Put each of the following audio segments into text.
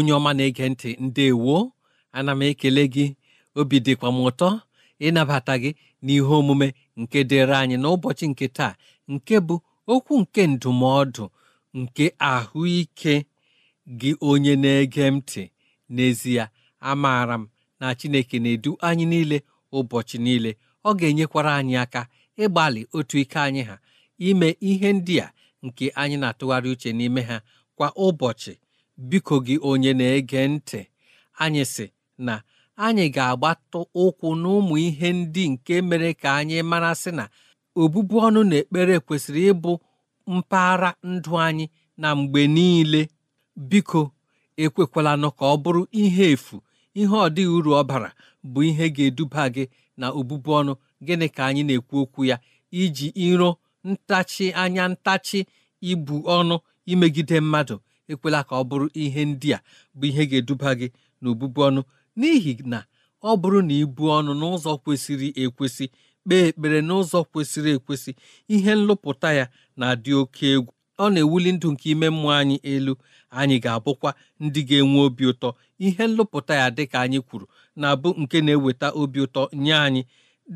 onye ọma na-ege ntị ndị ndewo ana m ekele gị obi dịkwa m ụtọ ịnabata gị n'ihe omume nke dịrị anyị n'ụbọchị nke taa nke bụ okwu nke ndụmọdụ nke ahụike gị onye na-ege ntị n'ezie amaara m na Chineke na-edu anyị niile ụbọchị niile ọ ga-enyekwara anyị aka ịgbalị otu ike anyị ha ime ihe ndị a nke anyị na-atụgharị uche n'ime ha kwa ụbọchị biko gị onye na-ege ntị anyị sị na anyị ga-agbatụ ụkwụ n'ụmụ ihe ndị nke mere ka anyị mara sị na obụbu ọnụ na ekpere kwesịrị ịbụ mpaghara ndụ anyị na mgbe niile biko ekwekwala nụ ka ọ bụrụ ihe efu ihe ọ dịghị uru ọ bara bụ ihe ga-eduba gị na obụbu ọnụ gịnị ka anyị na-ekwu okwu ya iji iro ntachi anya ntachi ibu ọnụ imegide mmadụ ekwela ka ọ bụrụ ihe ndị a bụ ihe ga-eduba gị n'obụbu ọnụ n'ihi na ọ bụrụ na ibu ọnụ n'ụzọ kwesịrị ekwesị kpee ekpere n'ụzọ kwesịrị ekwesị ihe nlụpụta ya na-adị oke egwu ọ na-ewuli ndụ nke ime mmụọ anyị elu anyị ga-abụkwa ndị ga-enwe obi ụtọ ihe nlụpụta ya dịka anyị kwuru na-abụ nke na-eweta obi ụtọ nye anyị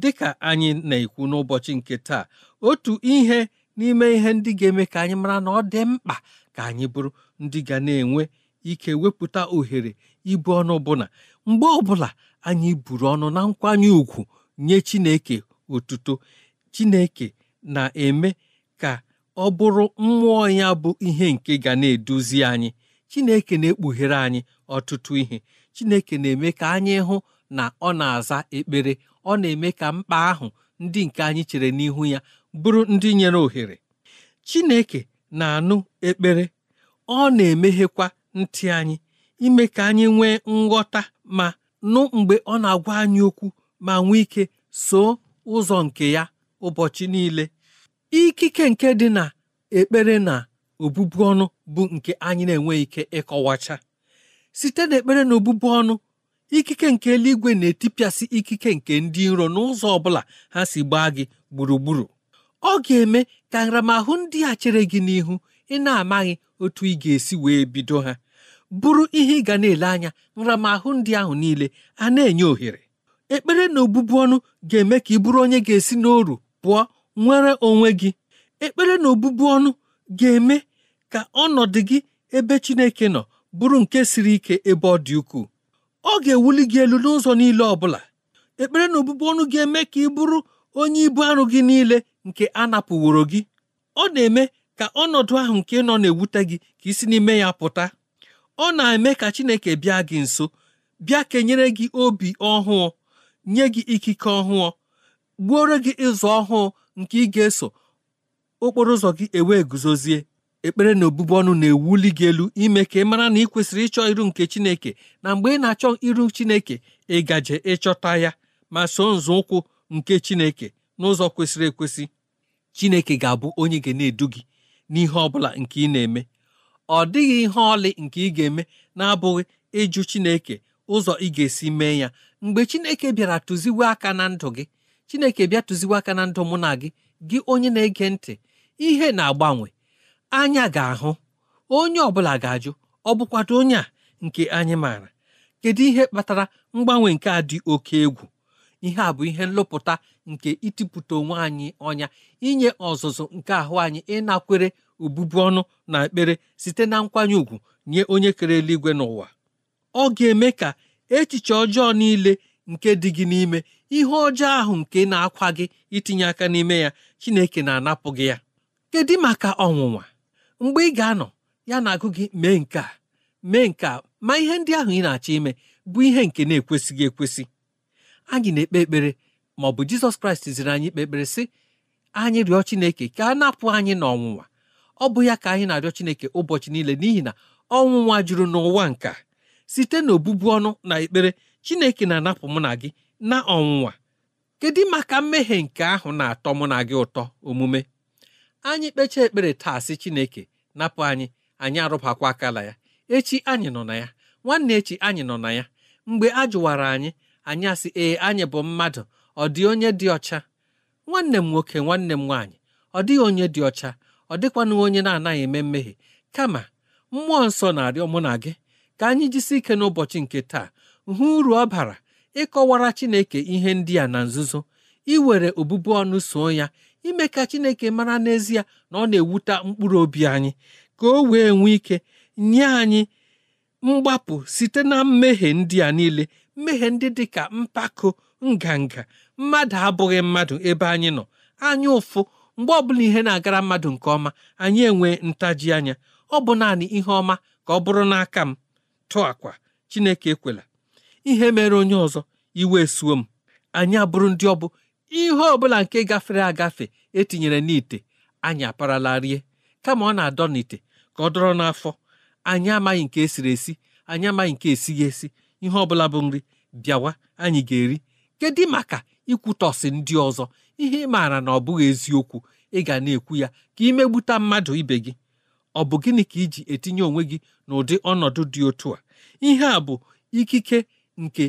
dịka anyị na-ekwu n'ụbọchị nke taa otu ihe n'ime ihe ndị ga-eme ka anyị mara na ọ dị mkpa ka anyị bụrụ ndị ga na-enwe ike wepụta ohere ibu ọnụ ọbụla mgbe ọbụla anyị buru ọnụ na nkwanye ùgwù nye Chineke otuto Chineke na-eme ka ọ bụrụ mmụọ ya bụ ihe nke ga na-eduzi anyị Chineke na-ekpughere anyị ọtụtụ ihe Chineke na-eme ka anyị hụ na ọ na-aza ekpere ọ na-eme ka mkpa ahụ ndị nke anyị chere n'ihu ya bụrụ ndị nyere ohere Chineke na-anụ ekpere ọ na-emeghekwa ntị anyị ime ka anyị nwee nghọta ma nụ mgbe ọ na-agwa anyị okwu ma nwee ike soo ụzọ nke ya ụbọchị niile ikike nke dị na ekpere na obubu ọnụ bụ nke anyị na-enweghị ike ịkọwacha site na ekpere na obubu ọnụ ikike nke eluigwe na-etipịasị ikike nke ndị iro n'ụzọ ọ bụla ha si gbaa gị gburugburu ọ ga-eme ka nramahụ ndị a chere gị n'ihu ị na-amaghị otu ị ga-esi wee bido ha bụrụ ihe ị ga na-ele anya nramahụ ndị ahụ niile a na-enye ohere ekpere na obụbu ọnụ ga-eme ka ị bụrụ onye ga-esi n'oru pụọ nwere onwe gị ekpere na obụbu ọnụ ga-eme ka ọnọdụ gị ebe Chineke nọ bụrụ nke siri ike ebe ọ dị ukwuu ọ ga-ewuli gị elu n'ụzọ niile ọ bụla ekpere na obụbu ọnụ ga-eme ka ị bụrụ onye ibu arụ gị niile nke a napụworo gị ọ na-eme ka ọnọdụ ahụ nke nọ na-ewute gị ka isi n'ime ya pụta ọ na-eme ka Chineke bịa gị nso bịa kenyere gị obi ọhụụ nye gị ikike ọhụụ gbuoro gị ụzọ ọhụụ nke ị ga-eso okporo ụzọ gị ewee guzozie ekpere na obubu ọnụ na-ewuli gị elu ime ka ị mara na ị kwesịrị ịchọ iru nke Chineke na mgbe ị na-achọ iru Chineke ịgaje ịchọta ya ma so nzọụkwụ nke Chineke n'ụzọ kwesịrị ekwesị chineke ga-abụ onye ga na-edu gị n'ihe ọ bụla nke ị na-eme ọ dịghị ihe ọlị nke ị ga-eme na-abụghị ịjụ chineke ụzọ ị ga-esi mee ya mgbe chineke bịara tụziwe aka na ndụ gị chineke bịa tụziwe aka na ndụ mụ na gị gị onye na-ege ntị ihe na-agbanwe anya ga-ahụ onye ọbụla ga-ajụ ọ bụkwado onye a nke anyị maara kedu ihe kpatara mgbanwe nke a dị oke egwu ihe a bụ ihe nlụpụta nke itipụta onwe anyị ọnya inye ọzụzụ nke ahụ anyị ịnakwere obubu ọnụ na ekpere site na nkwanye ùgwù nye onye kere eluigwe n'ụwa ọ ga-eme ka echiche ọjọọ niile nke dị gị n'ime ihe ọjọọ ahụ nke na-akwa gị itinye aka n'ime ya Chineke na-anapụ gị ya kedu maka ọnwụnwa mgbe ị ga-anọ ya na-agụ gị mee nke a mee nke a ma ihe ndị ahụ ị na-achọ ime bụ ihe nke na-ekwesịghị ekwesị anyị na-ekpe ekpere ma ọ bụ jizọs kraịst ziri anyị ikpe ekpere sị anyị rịọ chineke ka a napụ anyị n'ọnwụnwa ọ bụ ya ka anyị na-arịọ chineke ụbọchị niile n'ihi na ọnwụnwa juru n'ụwa nka site n'obụbu ọnụ na ekpere chineke na-anapụ mụ na gị na ọnwụnwa kedu maka mmehie nke ahụ na-atọ mụ na gị ụtọ omume anyị kpechaa ekpere taa sị chineke napụ anyị anyị arụbakwa akala ya echi anyị nọ na ya nwanne echi anyị nọ na ya mgbe a jụwara anyị anyị asị ee anyị bụ mmadụ ọ dị onye dị ọcha nwanne m nwoke nwanne m nwaanyị ọ dịghị onye dị ọcha ọ dịkwanụ onye na-anaghị eme mmehie kama mmụọ nsọ na-arịọ mụ na gị ka anyị jisi ike n'ụbọchị nke taa hụ uru ọ bara ịkọwara Chineke ihe ndị a na nzuzo iwere obubu ọnụ so ya ime ka Chineke mara n'ezie na ọ na-ewute mkpụrụ obi anyị ka o wee nwee ike nye anyị mgbapụ site na mmehie ndị a niile mmehie ndị dị ka mpako nganga mmadụ abụghị mmadụ ebe anyị nọ anya ụfụ mgbe ọbụla ihe na-agara mmadụ nke ọma anyị enwe ntaji anya ọ bụ naanị ihe ọma ka ọ bụrụ n'aka m tụọ akwa Chineke ekwela ihe mere onye ọzọ iwe esuo m anyị abụrụ ndị ọbụ ihe ọbụla nke gafere agafe etinyere n'ite anyị aparala rie kama ọ na-adọ n'ite ka ọ dọrọ n'afọ anyị amaghị nke esiri esi anyị amaghị nke esighị esi ihe ọbụla bụ nri bịawa anyị ga-eri kedu maka ikwutọsi ndị ọzọ ihe ị maara na ọ bụghị eziokwu ị ga na-ekwu ya ka imegbute mmadụ ibe gị ọ bụ gịnị ka iji etinye onwe gị n'ụdị ọnọdụ dị otu a ihe a bụ ikike nke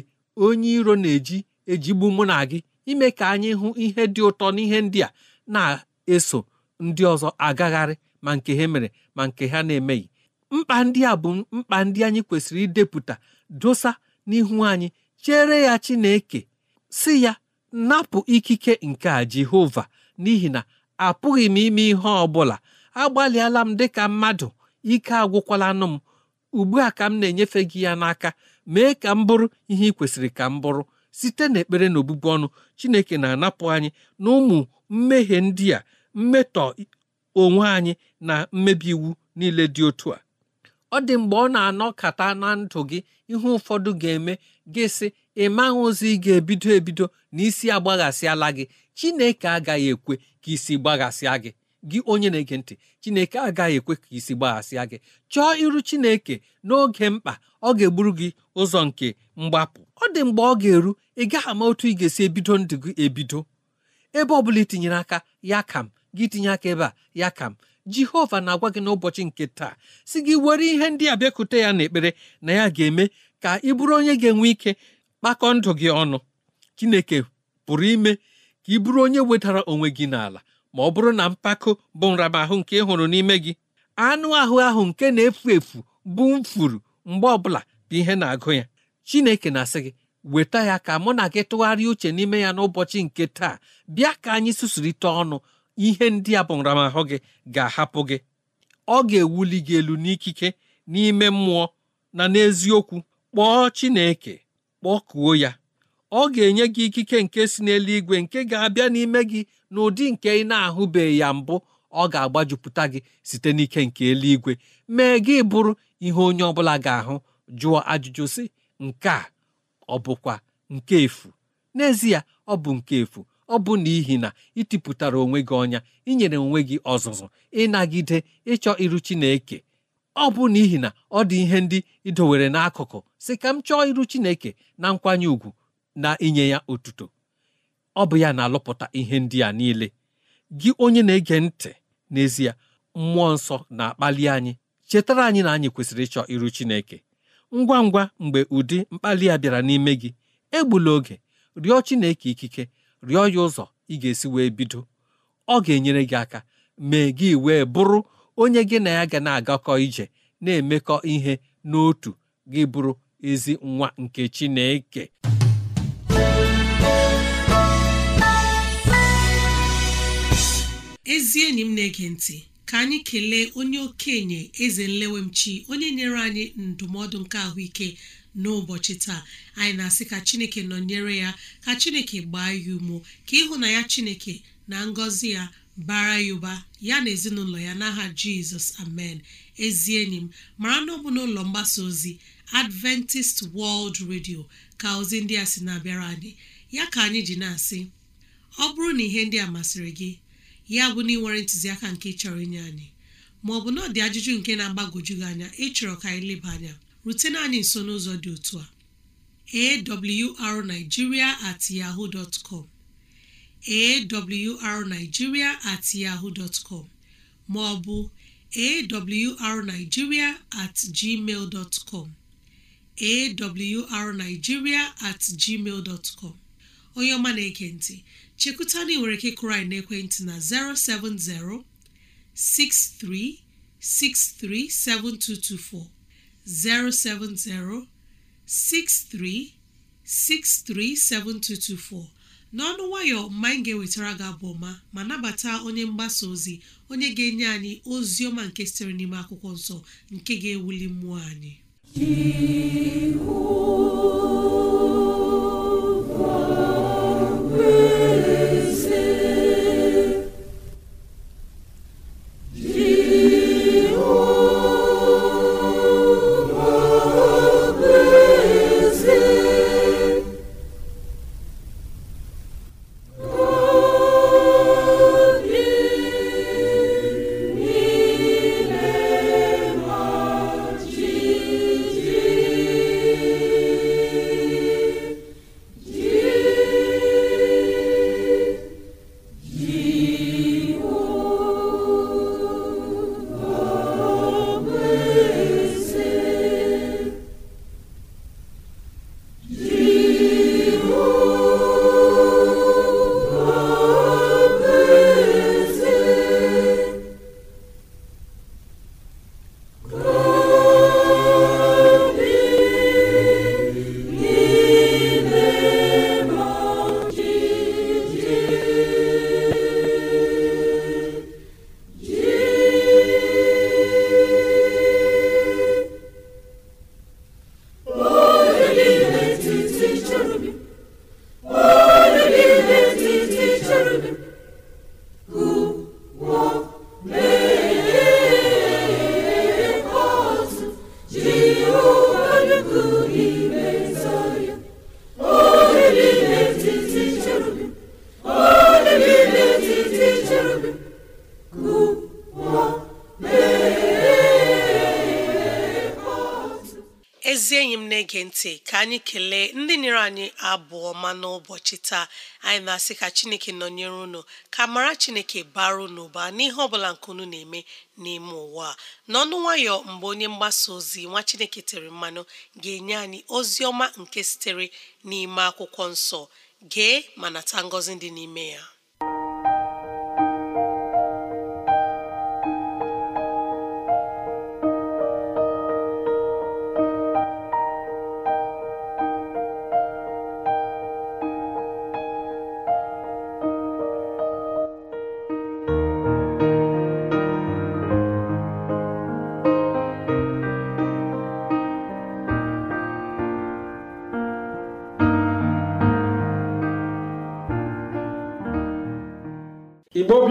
onye iro na-eji ejigbu mụ na gị ime ka anyị hụ ihe dị ụtọ n'ihe ndị a na-eso ndị ọzọ agagharị ma nke ha mere ma nke ha na-emeghị mkpa ndị a bụ mkpa ndị anyị kwesịrị idepụta dosa n'ihu anyị chere ya Chineke si ya napụ ikike nke a Jehova n'ihi na apụghị m ime ihe ọ bụla agbalịala m dịka mmadụ ike agwụkwalanụ m ugbu a ka m na-enyefe gị ya n'aka mee ka m bụrụ ihe ị kwesịrị ka m bụrụ site n'ekpere na obubu ọnụ Chineke na-anapụ anyị na ụmụ mmehie ndị a mmetọ onwe anyị na mmebi iwu niile dị otu a ọ dị mgbe ọ na-anọkata na ndụ gị ihe ụfọdụ ga-eme gị sị ị maghị ozi ị ga-ebido ebido na isi agbaghasịala gị chineke agaghị ekwe ka isi gbaghasịa gị gị onye na-ege ntị chineke agaghị ekwe ka isi gbaghasịa gị chọọ iru chineke n'oge mkpa ọ ga-egburu gị ụzọ nke mgbapụ ọ dị mgbe ọ ga-eru ị gaghị ama otu ị ga-esi ebido ndụ gị ebido ebe ọ bụla itinyere aka ya kam gị tinye aka ebe a ya kam jehova na-agwa gị n'ụbọchị nke taa si gị were ihe ndị a bịakute ya n'ekpere na ya ga-eme ka ị bụrụ onye ga-enwe ike kpakọ ndụ gị ọnụ chineke pụrụ ime ka ị bụrụ onye wetara onwe gị n'ala ma ọ bụrụ na mpako bụ nramahụ nke ị hụrụ n'ime gị anụ ahụ ahụ nke na-efu efu bụ mfuru mgbe ọbụla bụ ihe na-agụ ya chineke na-asị gị weta ya ka mụ na gị tụgharịa uche n'ime ya n'ụbọchị nke taa bịa ka anyị susurite ọnụ ihe ndị a bụ nramahụ gị ga-ahapụ gị ọ ga-ewuli gị elu n'ikike n'ime mmụọ na n'eziokwu kpọọ chineke kpọkuo ya ọ ga-enye gị ikike nke si n'eluigwe nke ga-abịa n'ime gị n'ụdị nke ị na-ahụbeghị ya mbụ ọ ga-agbajupụta gị site n'ike nke eluigwe mee gị bụrụ ihe onye ọbụla ga-ahụ jụọ ajụjụ sị nke a ọ bụkwa nke efu n'ezie ọ bụ nke efu ọ bụ n'ihi na ịtipụtara onwe gị ọnya inyere onwe gị ọzụzụ ịnagide ịchọ iru Chineke ọ bụ n'ihi na ọ dị ihe ndị idowere n'akụkụ si ka m chọọ iru Chineke na nkwanye ùgwù na inye ya otuto ọ bụ ya na-alụpụta ihe ndị a niile gị onye na-ege ntị n'ezie mmụọ nsọ na-akpali anyị chetara anyị na anyị kwesịrị ịchọ iru Chineke ngwa ngwa mgbe ụdị mkpali a bịara n'ime gị egbula oge rịọ Chineke ikike rịọ ya ụzọ ị ga-esi wee bido ọ ga-enyere gị aka mee gị wee bụrụ onye gị na ya ga na-agakọ ije na-emekọ ihe n'otu gị bụrụ ezi nwa nke Chineke ezi enyi m na-ege ntị ka anyị kelee onye okenye eze nlewemchi onye nyere anyị ndụmọdụ nke ahụike n'ụbọchị taa anyị na-asị ka chineke nọnyere ya ka chineke gbaa ya umo ka ịhụ na ya chineke na ngọzi ya bara ya ụba ya na ezinụlọ ya n'aha jizọs amen ezi enyi m mara na ọ bụ n'ụlọ mgbasa ozi adventist world radio ka ozi ndị a sị na-abịara anyị ya ka anyị ji na-asị ọ bụrụ na ihe ndị a masịrị gị ya bụ na ịnwere ntụziaka nke chọrọ inye anyị ma ọ bụ na ọ dị ajụjụ nke na-agbagwoju gị anya ịchọrọ ka anyị leba anya rutena anyị nso n'ụzọ dị otu a awrnigeria at yahoo dot com awrnigeria at yahoo dot com ma ọ bụ awrnigeria at gmail dot com awrnigeria at gmail dot onye ọma na ekentị ntị na ị nwere ike n'ekwentị na 070 6363 7224 070 7224 n'ọnụ nwayọ mma anyị ga-ewetara gị abụ ọma ma nabata onye mgbasa ozi onye ga-enye anyị ozi ọma nke sitere n'ime akwụkwọ nsọ nke ga-ewuli mmụọ anyị anyị kelee ndị nyere anyị abụọ ma n'ụbọchị taa anyị na-asị ka chineke nọnyere unu ka mara chineke bara unu n'ihe ọbụla nke unu na-eme n'ime ụwa na n'ọnụ nwayọ mgbe onye mgbasa ozi nwa chineke tere mmanụ ga-enye anyị ozi ọma nke sitere n'ime akwụkwọ nsọ gee ma nata ngọzi dị n'ime ya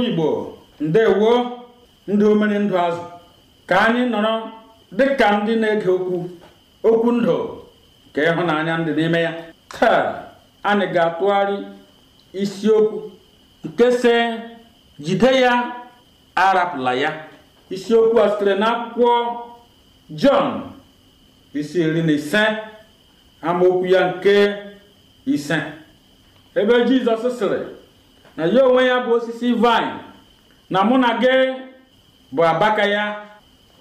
Igbo ndewo ndị omere ndụ azụ ka anyị nọrọ dịka ndị na-ege okwu okwu ndụ ka ịhụnanya ndị n'ime ya taa anyị ga-atụgharị isiokwu nke se jide ya arapụla ya isiokwu a sitere n'akwụkwọ Jọn isi iri na ise amaokwu ya nke ise ebe Jizọs sịrị na ya onwe ya bụ osisi vine na mụ na gị bụ abaka ya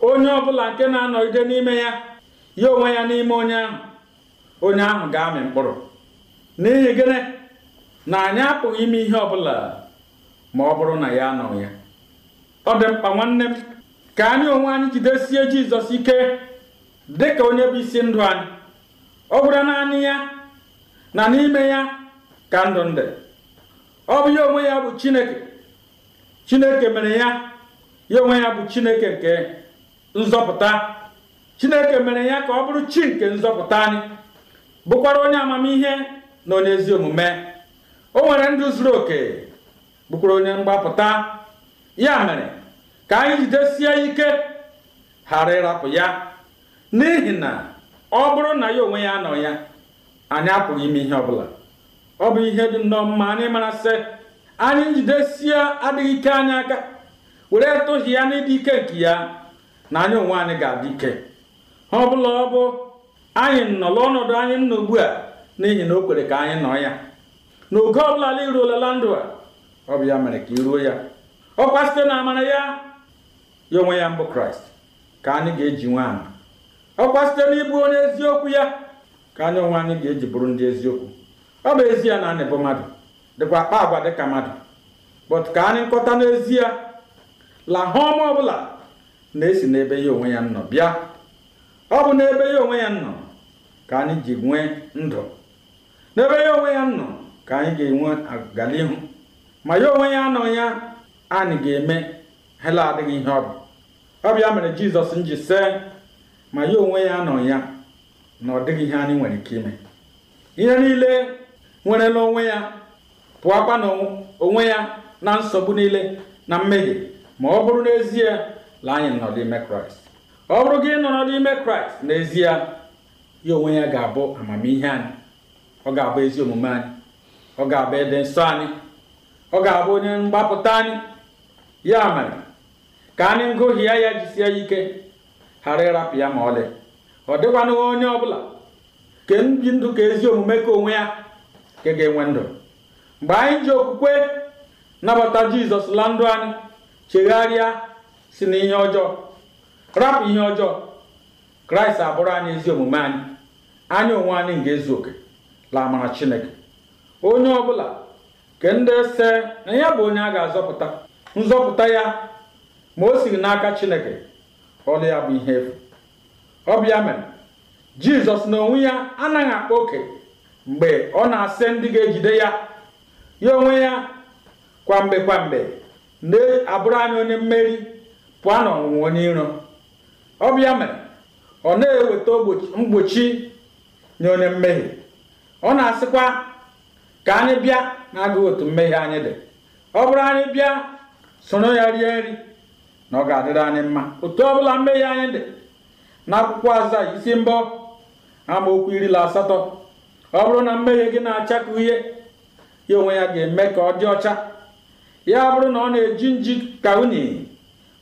onye ọbụla nke na-anọgide n'ime ya ya onwe ya n'ime onye ahụ onye ahụ ga-amị mkpụrụ n'ihi gịnị na anyị apụghị ime ihe ọbụla ma ọ bụrụ na ya anọ ya ọ dị mkpa nwanne m ka anyị onwe anyị jidesie Jizọs ike dị ka onye bụ isi ndụ anyị ọ bụrụ na anyị ya na n'ime ya ka ndụ ndị ọ bụ ya onwe ya bụ chineke chineke mere ya ya onwe ya bụ chineke nke nzọpụta chineke mere ya ka ọ bụrụ chi nke nzọpụta anyị bụkwara onye amamihe na onye ezi omume o nwere ndụ zuru oke bụkwara onye mgbapụta ya mere ka anyị jidesie ike ghara ịrapụ ya n'ihi na ọ bụrụ na ya onwe ya nọ ya anyị apụghị ime ihe ọbụla ọ bụ ihe dị nnọọ mma anyị mara sị anyị njidesie adịghị ike anyị aka were tụhị ya ịdị ike nke ya na anyị onwe anyị ga-adị ike ọ bụla ọ bụ anyị nọ ọnọdụ anyị nọ ugbu a n'ihi na o kwere ka anyị nọ ya n'oge ọbụla ala iruolela ndụ a ọ bụ ya mere ka iruo ya ọkwa site na amara ya ya onwe ya mbụ kraịst ka anyị ga-eji nwe Ọ ọkwa site n'ịbụ onye eziokwu ya ka anyị onwe anyị ga-eji bụrụ ndị eziokwu ọ bụ ezie na anị bụ mmadụ dịkwa akpa agwa dịka mmadụ but ka anyị nkọta n'ezie la ọ ọbụla na-esi n'ebe ya onwe ya nọ bịa ọ bụ n'ebe ya onwe ya nọ ka anyị ji nwee ndụ n'ebe ya onwe ya nọ ka anyị ga-enwe agalihu ma ya onwe ya nọ ya anyị ga-eme hela adịghị ihe ọ bụ ọ bịa mere jizọs nji see ma ya onwe ya nọ ya na ọ dịghị ihe anyị nwere ike ime ihe niile nwere onwe ya pụọ na onwe ya na nsogbu niile na mmehie ma ọ bụrụ n'ezie la anyị nọ n'ime kraịst ọ bụrụ gị nọrọ n'ime kraịst n'ezie ya onwe ya ga-abụ amamihe anyị ọ ga-abụ ezi omume anyị ọ ga-abụ ịdị nsọ anyị ọ ga-abụ onye mgbapụta anyị ya mere ka anyị ngụhie ya jisie ya ike ghara ịrapụ ya ma ọlị ọ dịkwana onye ọ bụla ka ndụ ka ezi omume ka onwe ya nke ga-enwe ndụ mgbe anyị ji okwukwe nabata jizọs la ndụ anyị chegharịa si na ihe ọjọọ rapụ ihe ọjọọ kraịst abụrụ anyị ezi omume anyị anya onwe anyị ga-ezu oke la amara chineke onye ọbụla ke ndị se na ya bụ onye a ga-azọpụta nzọpụta ya ma o siri n'aka chineke ọlụ ya bụ ihe efu ọbịa mere jizọs na onwe ya anaghị akpa oke mgbe ọ na-asị ndị ga-ejide ya ya onwe ya kwamgbe kwamgbe na-abụrụ anyị onye mmeri pụọ n'ọnwụnwa onye iro ọ mere ọ na-eweta mgbochi nye onye mmehie ọ na-asịkwa ka anyị bịa na-agụghị otu mmehie anyị dị ọ bụrụ anyị bịa soro ya rie nri na ọ ga-adịrị anyị mma otu ọbụla mmehie anyị dị n'akwụkwọ akwụkwọ aza isi mbọ amaokwu iri asatọ ọ bụrụ na mmehie gị na-acha ka uhie ya onwe ya ga-eme ka ọ dị ọcha ya bụrụ na ọ na-eji nji ka unyi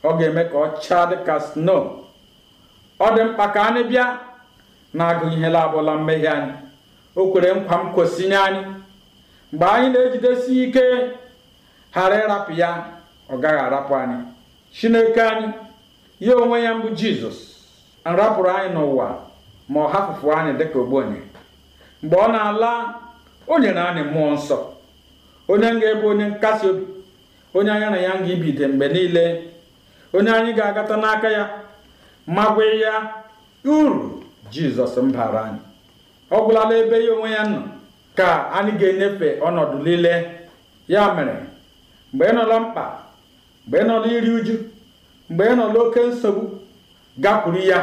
ọ ga-eme ka ọ chaa dị ka sno ọ dị mkpa ka anyị bịa na-agụ ihe labụla mmehie anyị o kwere nkwa m kwesịnye anyị mgbe anyị na-ejidesi ike ghara ịrapụ ya ọ gaghị arapụ anyị chineke anyị ya onwe ya mbụ jizọs nrapụrụ anyị n'ụwa ma ọ hapụpụ anyị dịka ogbenye mgbe ọ na-ala o nyere anyị mmụọ nsọ onye m ga onye nkasi obi onye anyị na ya ga ibide mgbe niile onye anyị ga-agata n'aka ya magwe ya uru jizọs mbara anyị ọ gwụlala ebe ya onwe ya nọ ka anyị ga-enyefe ọnọdụ niile ya mere mgbe ị nọla mkpa mgbe ị nọla iri uju mgbe ị nọla oke nsogbu gakwuru ya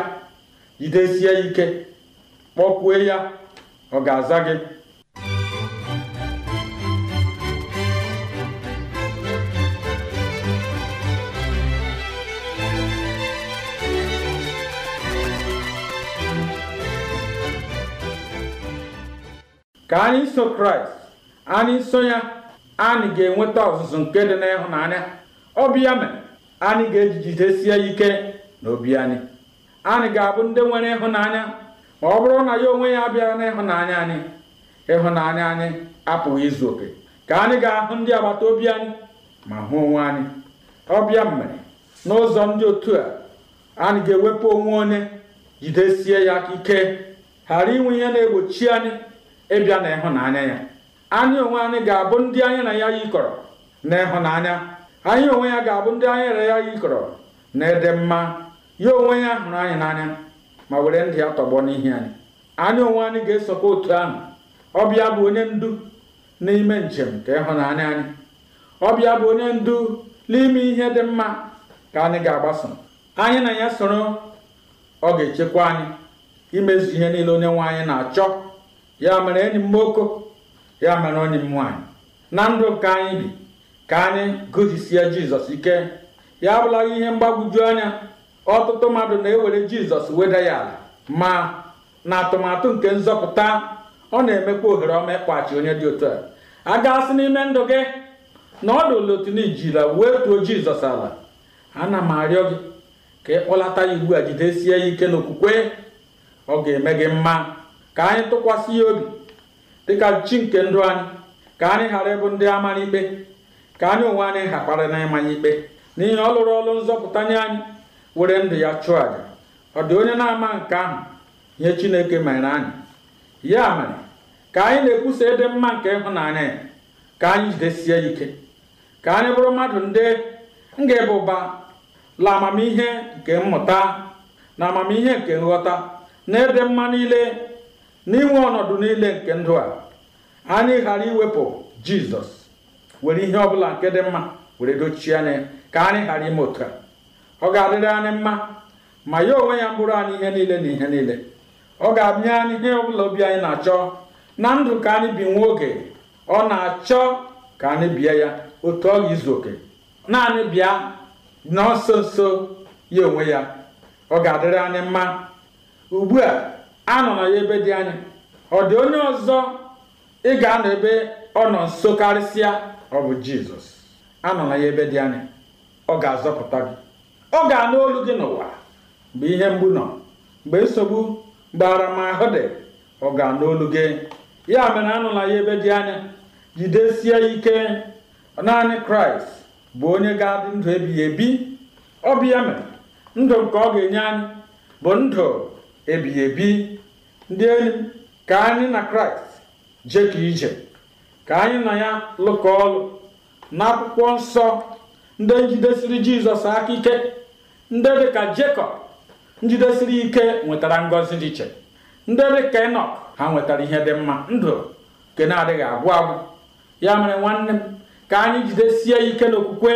jidesie ike kpọkwue ya ọ ga-aza gị ka anyị so kraịst anyị so ya anyị ga-enweta ọzụzụ nke dị n'ịhụnanya ọ mere anyị ga-ejigidesie ya ike n'obi anyị anyị ga-abụ ndị nwere ịhụnanya ma ọ bụrụ na ya onwe ya bịara n'ịhụnanya anyị ịhụnanya anyị apụghị izu oke ka anyị ga-ahụ ndị agbata obi anyị ma hụ onwe anyị ọbịa mere n'ụzọ ndị otu a anyị ga-ewepụ onwe onye jidesie ya ike ghara inwe ihe na-egbochi anyị ịbịa na ịhụnanya ya anyị onwe anyị ga-abụ ndị anyị na ya yikọrọ na ịhụnanya anyị onwe ya ga-abụ ndị anyị na ya yikọrọ na ịdị mma ya onwe ya hụrụ anyị n'anya ma were ndị ya tọgbọ n'ihi anyị anyị onwe anyị ga-esokwa otu ahụ ọbịa bụ onye ndu n'ime njem ka ịhụnanya anyị ọbịa bụ onye ndu n'ime ihe dị mma ka anyị ga-agbaso anyị na ya soro ọ ga-echekwa anyị imezu ihe niile onye nwe anyị na-achọ ya mere enyi m nwoke ya mere onye m nwaanyị na ndụ nke anyị bi ka anyị gụzisie jizọs ike ya abụlaghị ihe mgbagwoju anya ọtụtụ mmadụ na-ewere jizọs weda ya ala ma na atụmatụ nke nzọpụta ọ na-emekwa ohere ọma ịkpọghachi onye dị otu a a gasị n'ime ndụ gị na ọ dụla otu na ijila wee tuo jizọs ala ana m arịọ gị ka ịkpọlata ya ugbu a jidesie ya ike n'okwukwe ọ ga-eme gị mma ka anyị tụkwasị ya obi dịka chi nke ndụ anyị ka anyị ghara ịbụ ndị amara ikpe ka anyị onwe anyị ghakpara na ịmanya ikpe n'ihi ọ lụrụ ọlụ nzọpụta nye anyị were ndụ ya chụọ àjà ọ dị onye na-ama nke ahụ nye Chineke mere anyị ya mere ka anyị na-ekwusa ịdị mma nke ịhụnanya ya ka anyị jidesie ike ka anyị bụrụ mmadụ ndị nga ga ụba la amamihe nke mmụta na amamihe nke nghọta na ịdị mma niile n'inwe ọnọdụ niile nke ndụ a anyị ghara iwepụ Jizọs were ihe ọbụla nke dị mma were dochie anya ka anyị ghara ime otu a ọ ga-adịrị anyị mma ma ya onwe ya bụrụ anyị ihe niile na ihe niile ọ ga-abịa anyị ihe ọbụla obi anyị na-achọ na ndụ ka anyị bi nwa oge ọ na-achọ ka anyị bia ya otu ọ ga-izu oke naanị bịa na nso nso ya onwe ya ọ ga-adịrị anyị mma ugbu a anọ na ya ebe dị anya ọ dị onye ọzọ ị ga-anọ ebe ọ nọ nso karịsịa ọ bụ jizọs anọ na ya ebe dị anya ọ ga-azọpụta gị ọ ga-anụ olu gị n'ụwa mgbe ihe mgbu nọ mgbe nsogbu mgbe aramahụ dị ọ ga-anụ olu gị ya mere anụla ya ebe dị anya jidesie ike naanị kraịst bụ onye ga-adị ndụ ebighị ebi ọ bịa mere ndụ nke ọ ga-enye anyị bụ ndụ ebighị ebi ndị enyi ka anyị na kraịst jekọ ije ka anyị na ya lụkọ ọlụ n'akwụkwọ nsọ ndị njidesiri jizọs aka ike ndị dịka Jekọb njidesiri ike nwetara ngọzi dị iche ndị dịka Enọk ha nwetara ihe dị mma ndụ nke na-adịghị agwụ agwụ ya mere nwanne m ka anyị jidesie ike n'okwukwe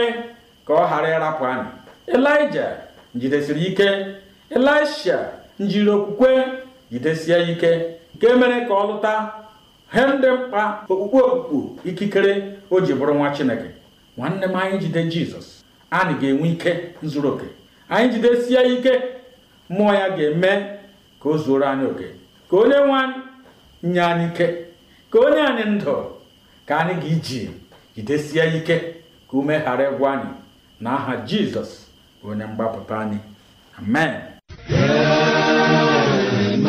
ka ọ ghara ịrapụ anyị elija njidesiri ike elisha njiri okwukwe jidesie ike nke mere ka ọ lụta he ndị mkpa okpukpe okpukpu ikikere o ji bụrụ nwa Chineke nwanne m anyị jide Jizọs anyị ga-enwe ike zuru oke anyị jidesie ike mmụọ ya ga-eme ka o zuoro anyị oke ka onye nwe anyị nye anyị ike ka onye anyị ndụ ka anyị ga-iji jidesie ike ka ume ghara ịgwa anyị na aha jizọs onye mgbapụta anyị amen amen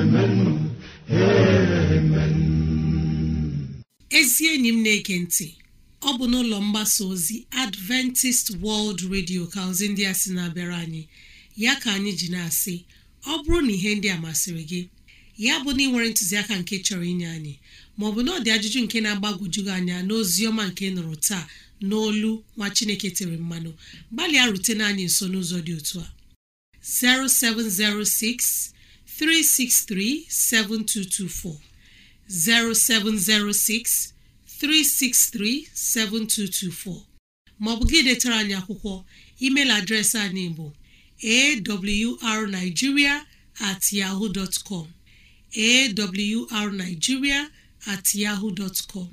amen amen ezi enyi m na-ege ntị ọ bụ n'ụlọ mgbasa ozi Adventist World Radio ka ozi ndị a sị na-abịara anyị ya ka anyị ji na-asị ọ bụrụ na ihe ndị a masịrị gị ya bụ na ị nwere ntụziaka nke chọrọ inye anyị maọbụ na ọ dị ajụjụ nke na-agbagwoju anya n'ozi ọma nke nụrụ taa n'olu nwa Chineke tere mmanụ gbalịa rutena anyị nso n'ụzọ dị otu a 0706 363 7224 0706 363-7224 maọbụ gị detara anyị akwụkwọ email adreesị anyị bụ awrnigeria at yahoo dot com at yahoo dot com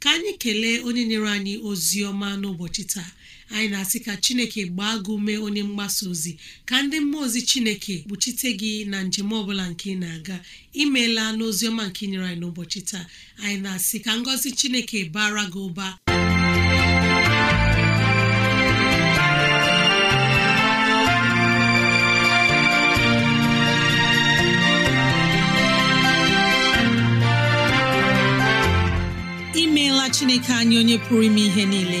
ka anyị kelee onye nyere anyị ozi ọma n'ụbọchị taa anyị na-asị ka chineke gbaa gị ume onye mgbasa ozi ka ndị mmụọ ozi chineke kpuchite gị na njem ọbụla nke ị na-aga imeela ọma nke inyere anyị n'ụbọchị taa anyị na-asị ka ngọzi chineke bara gị ụba imeela chineke anyị onye pụrụ ime ihe niile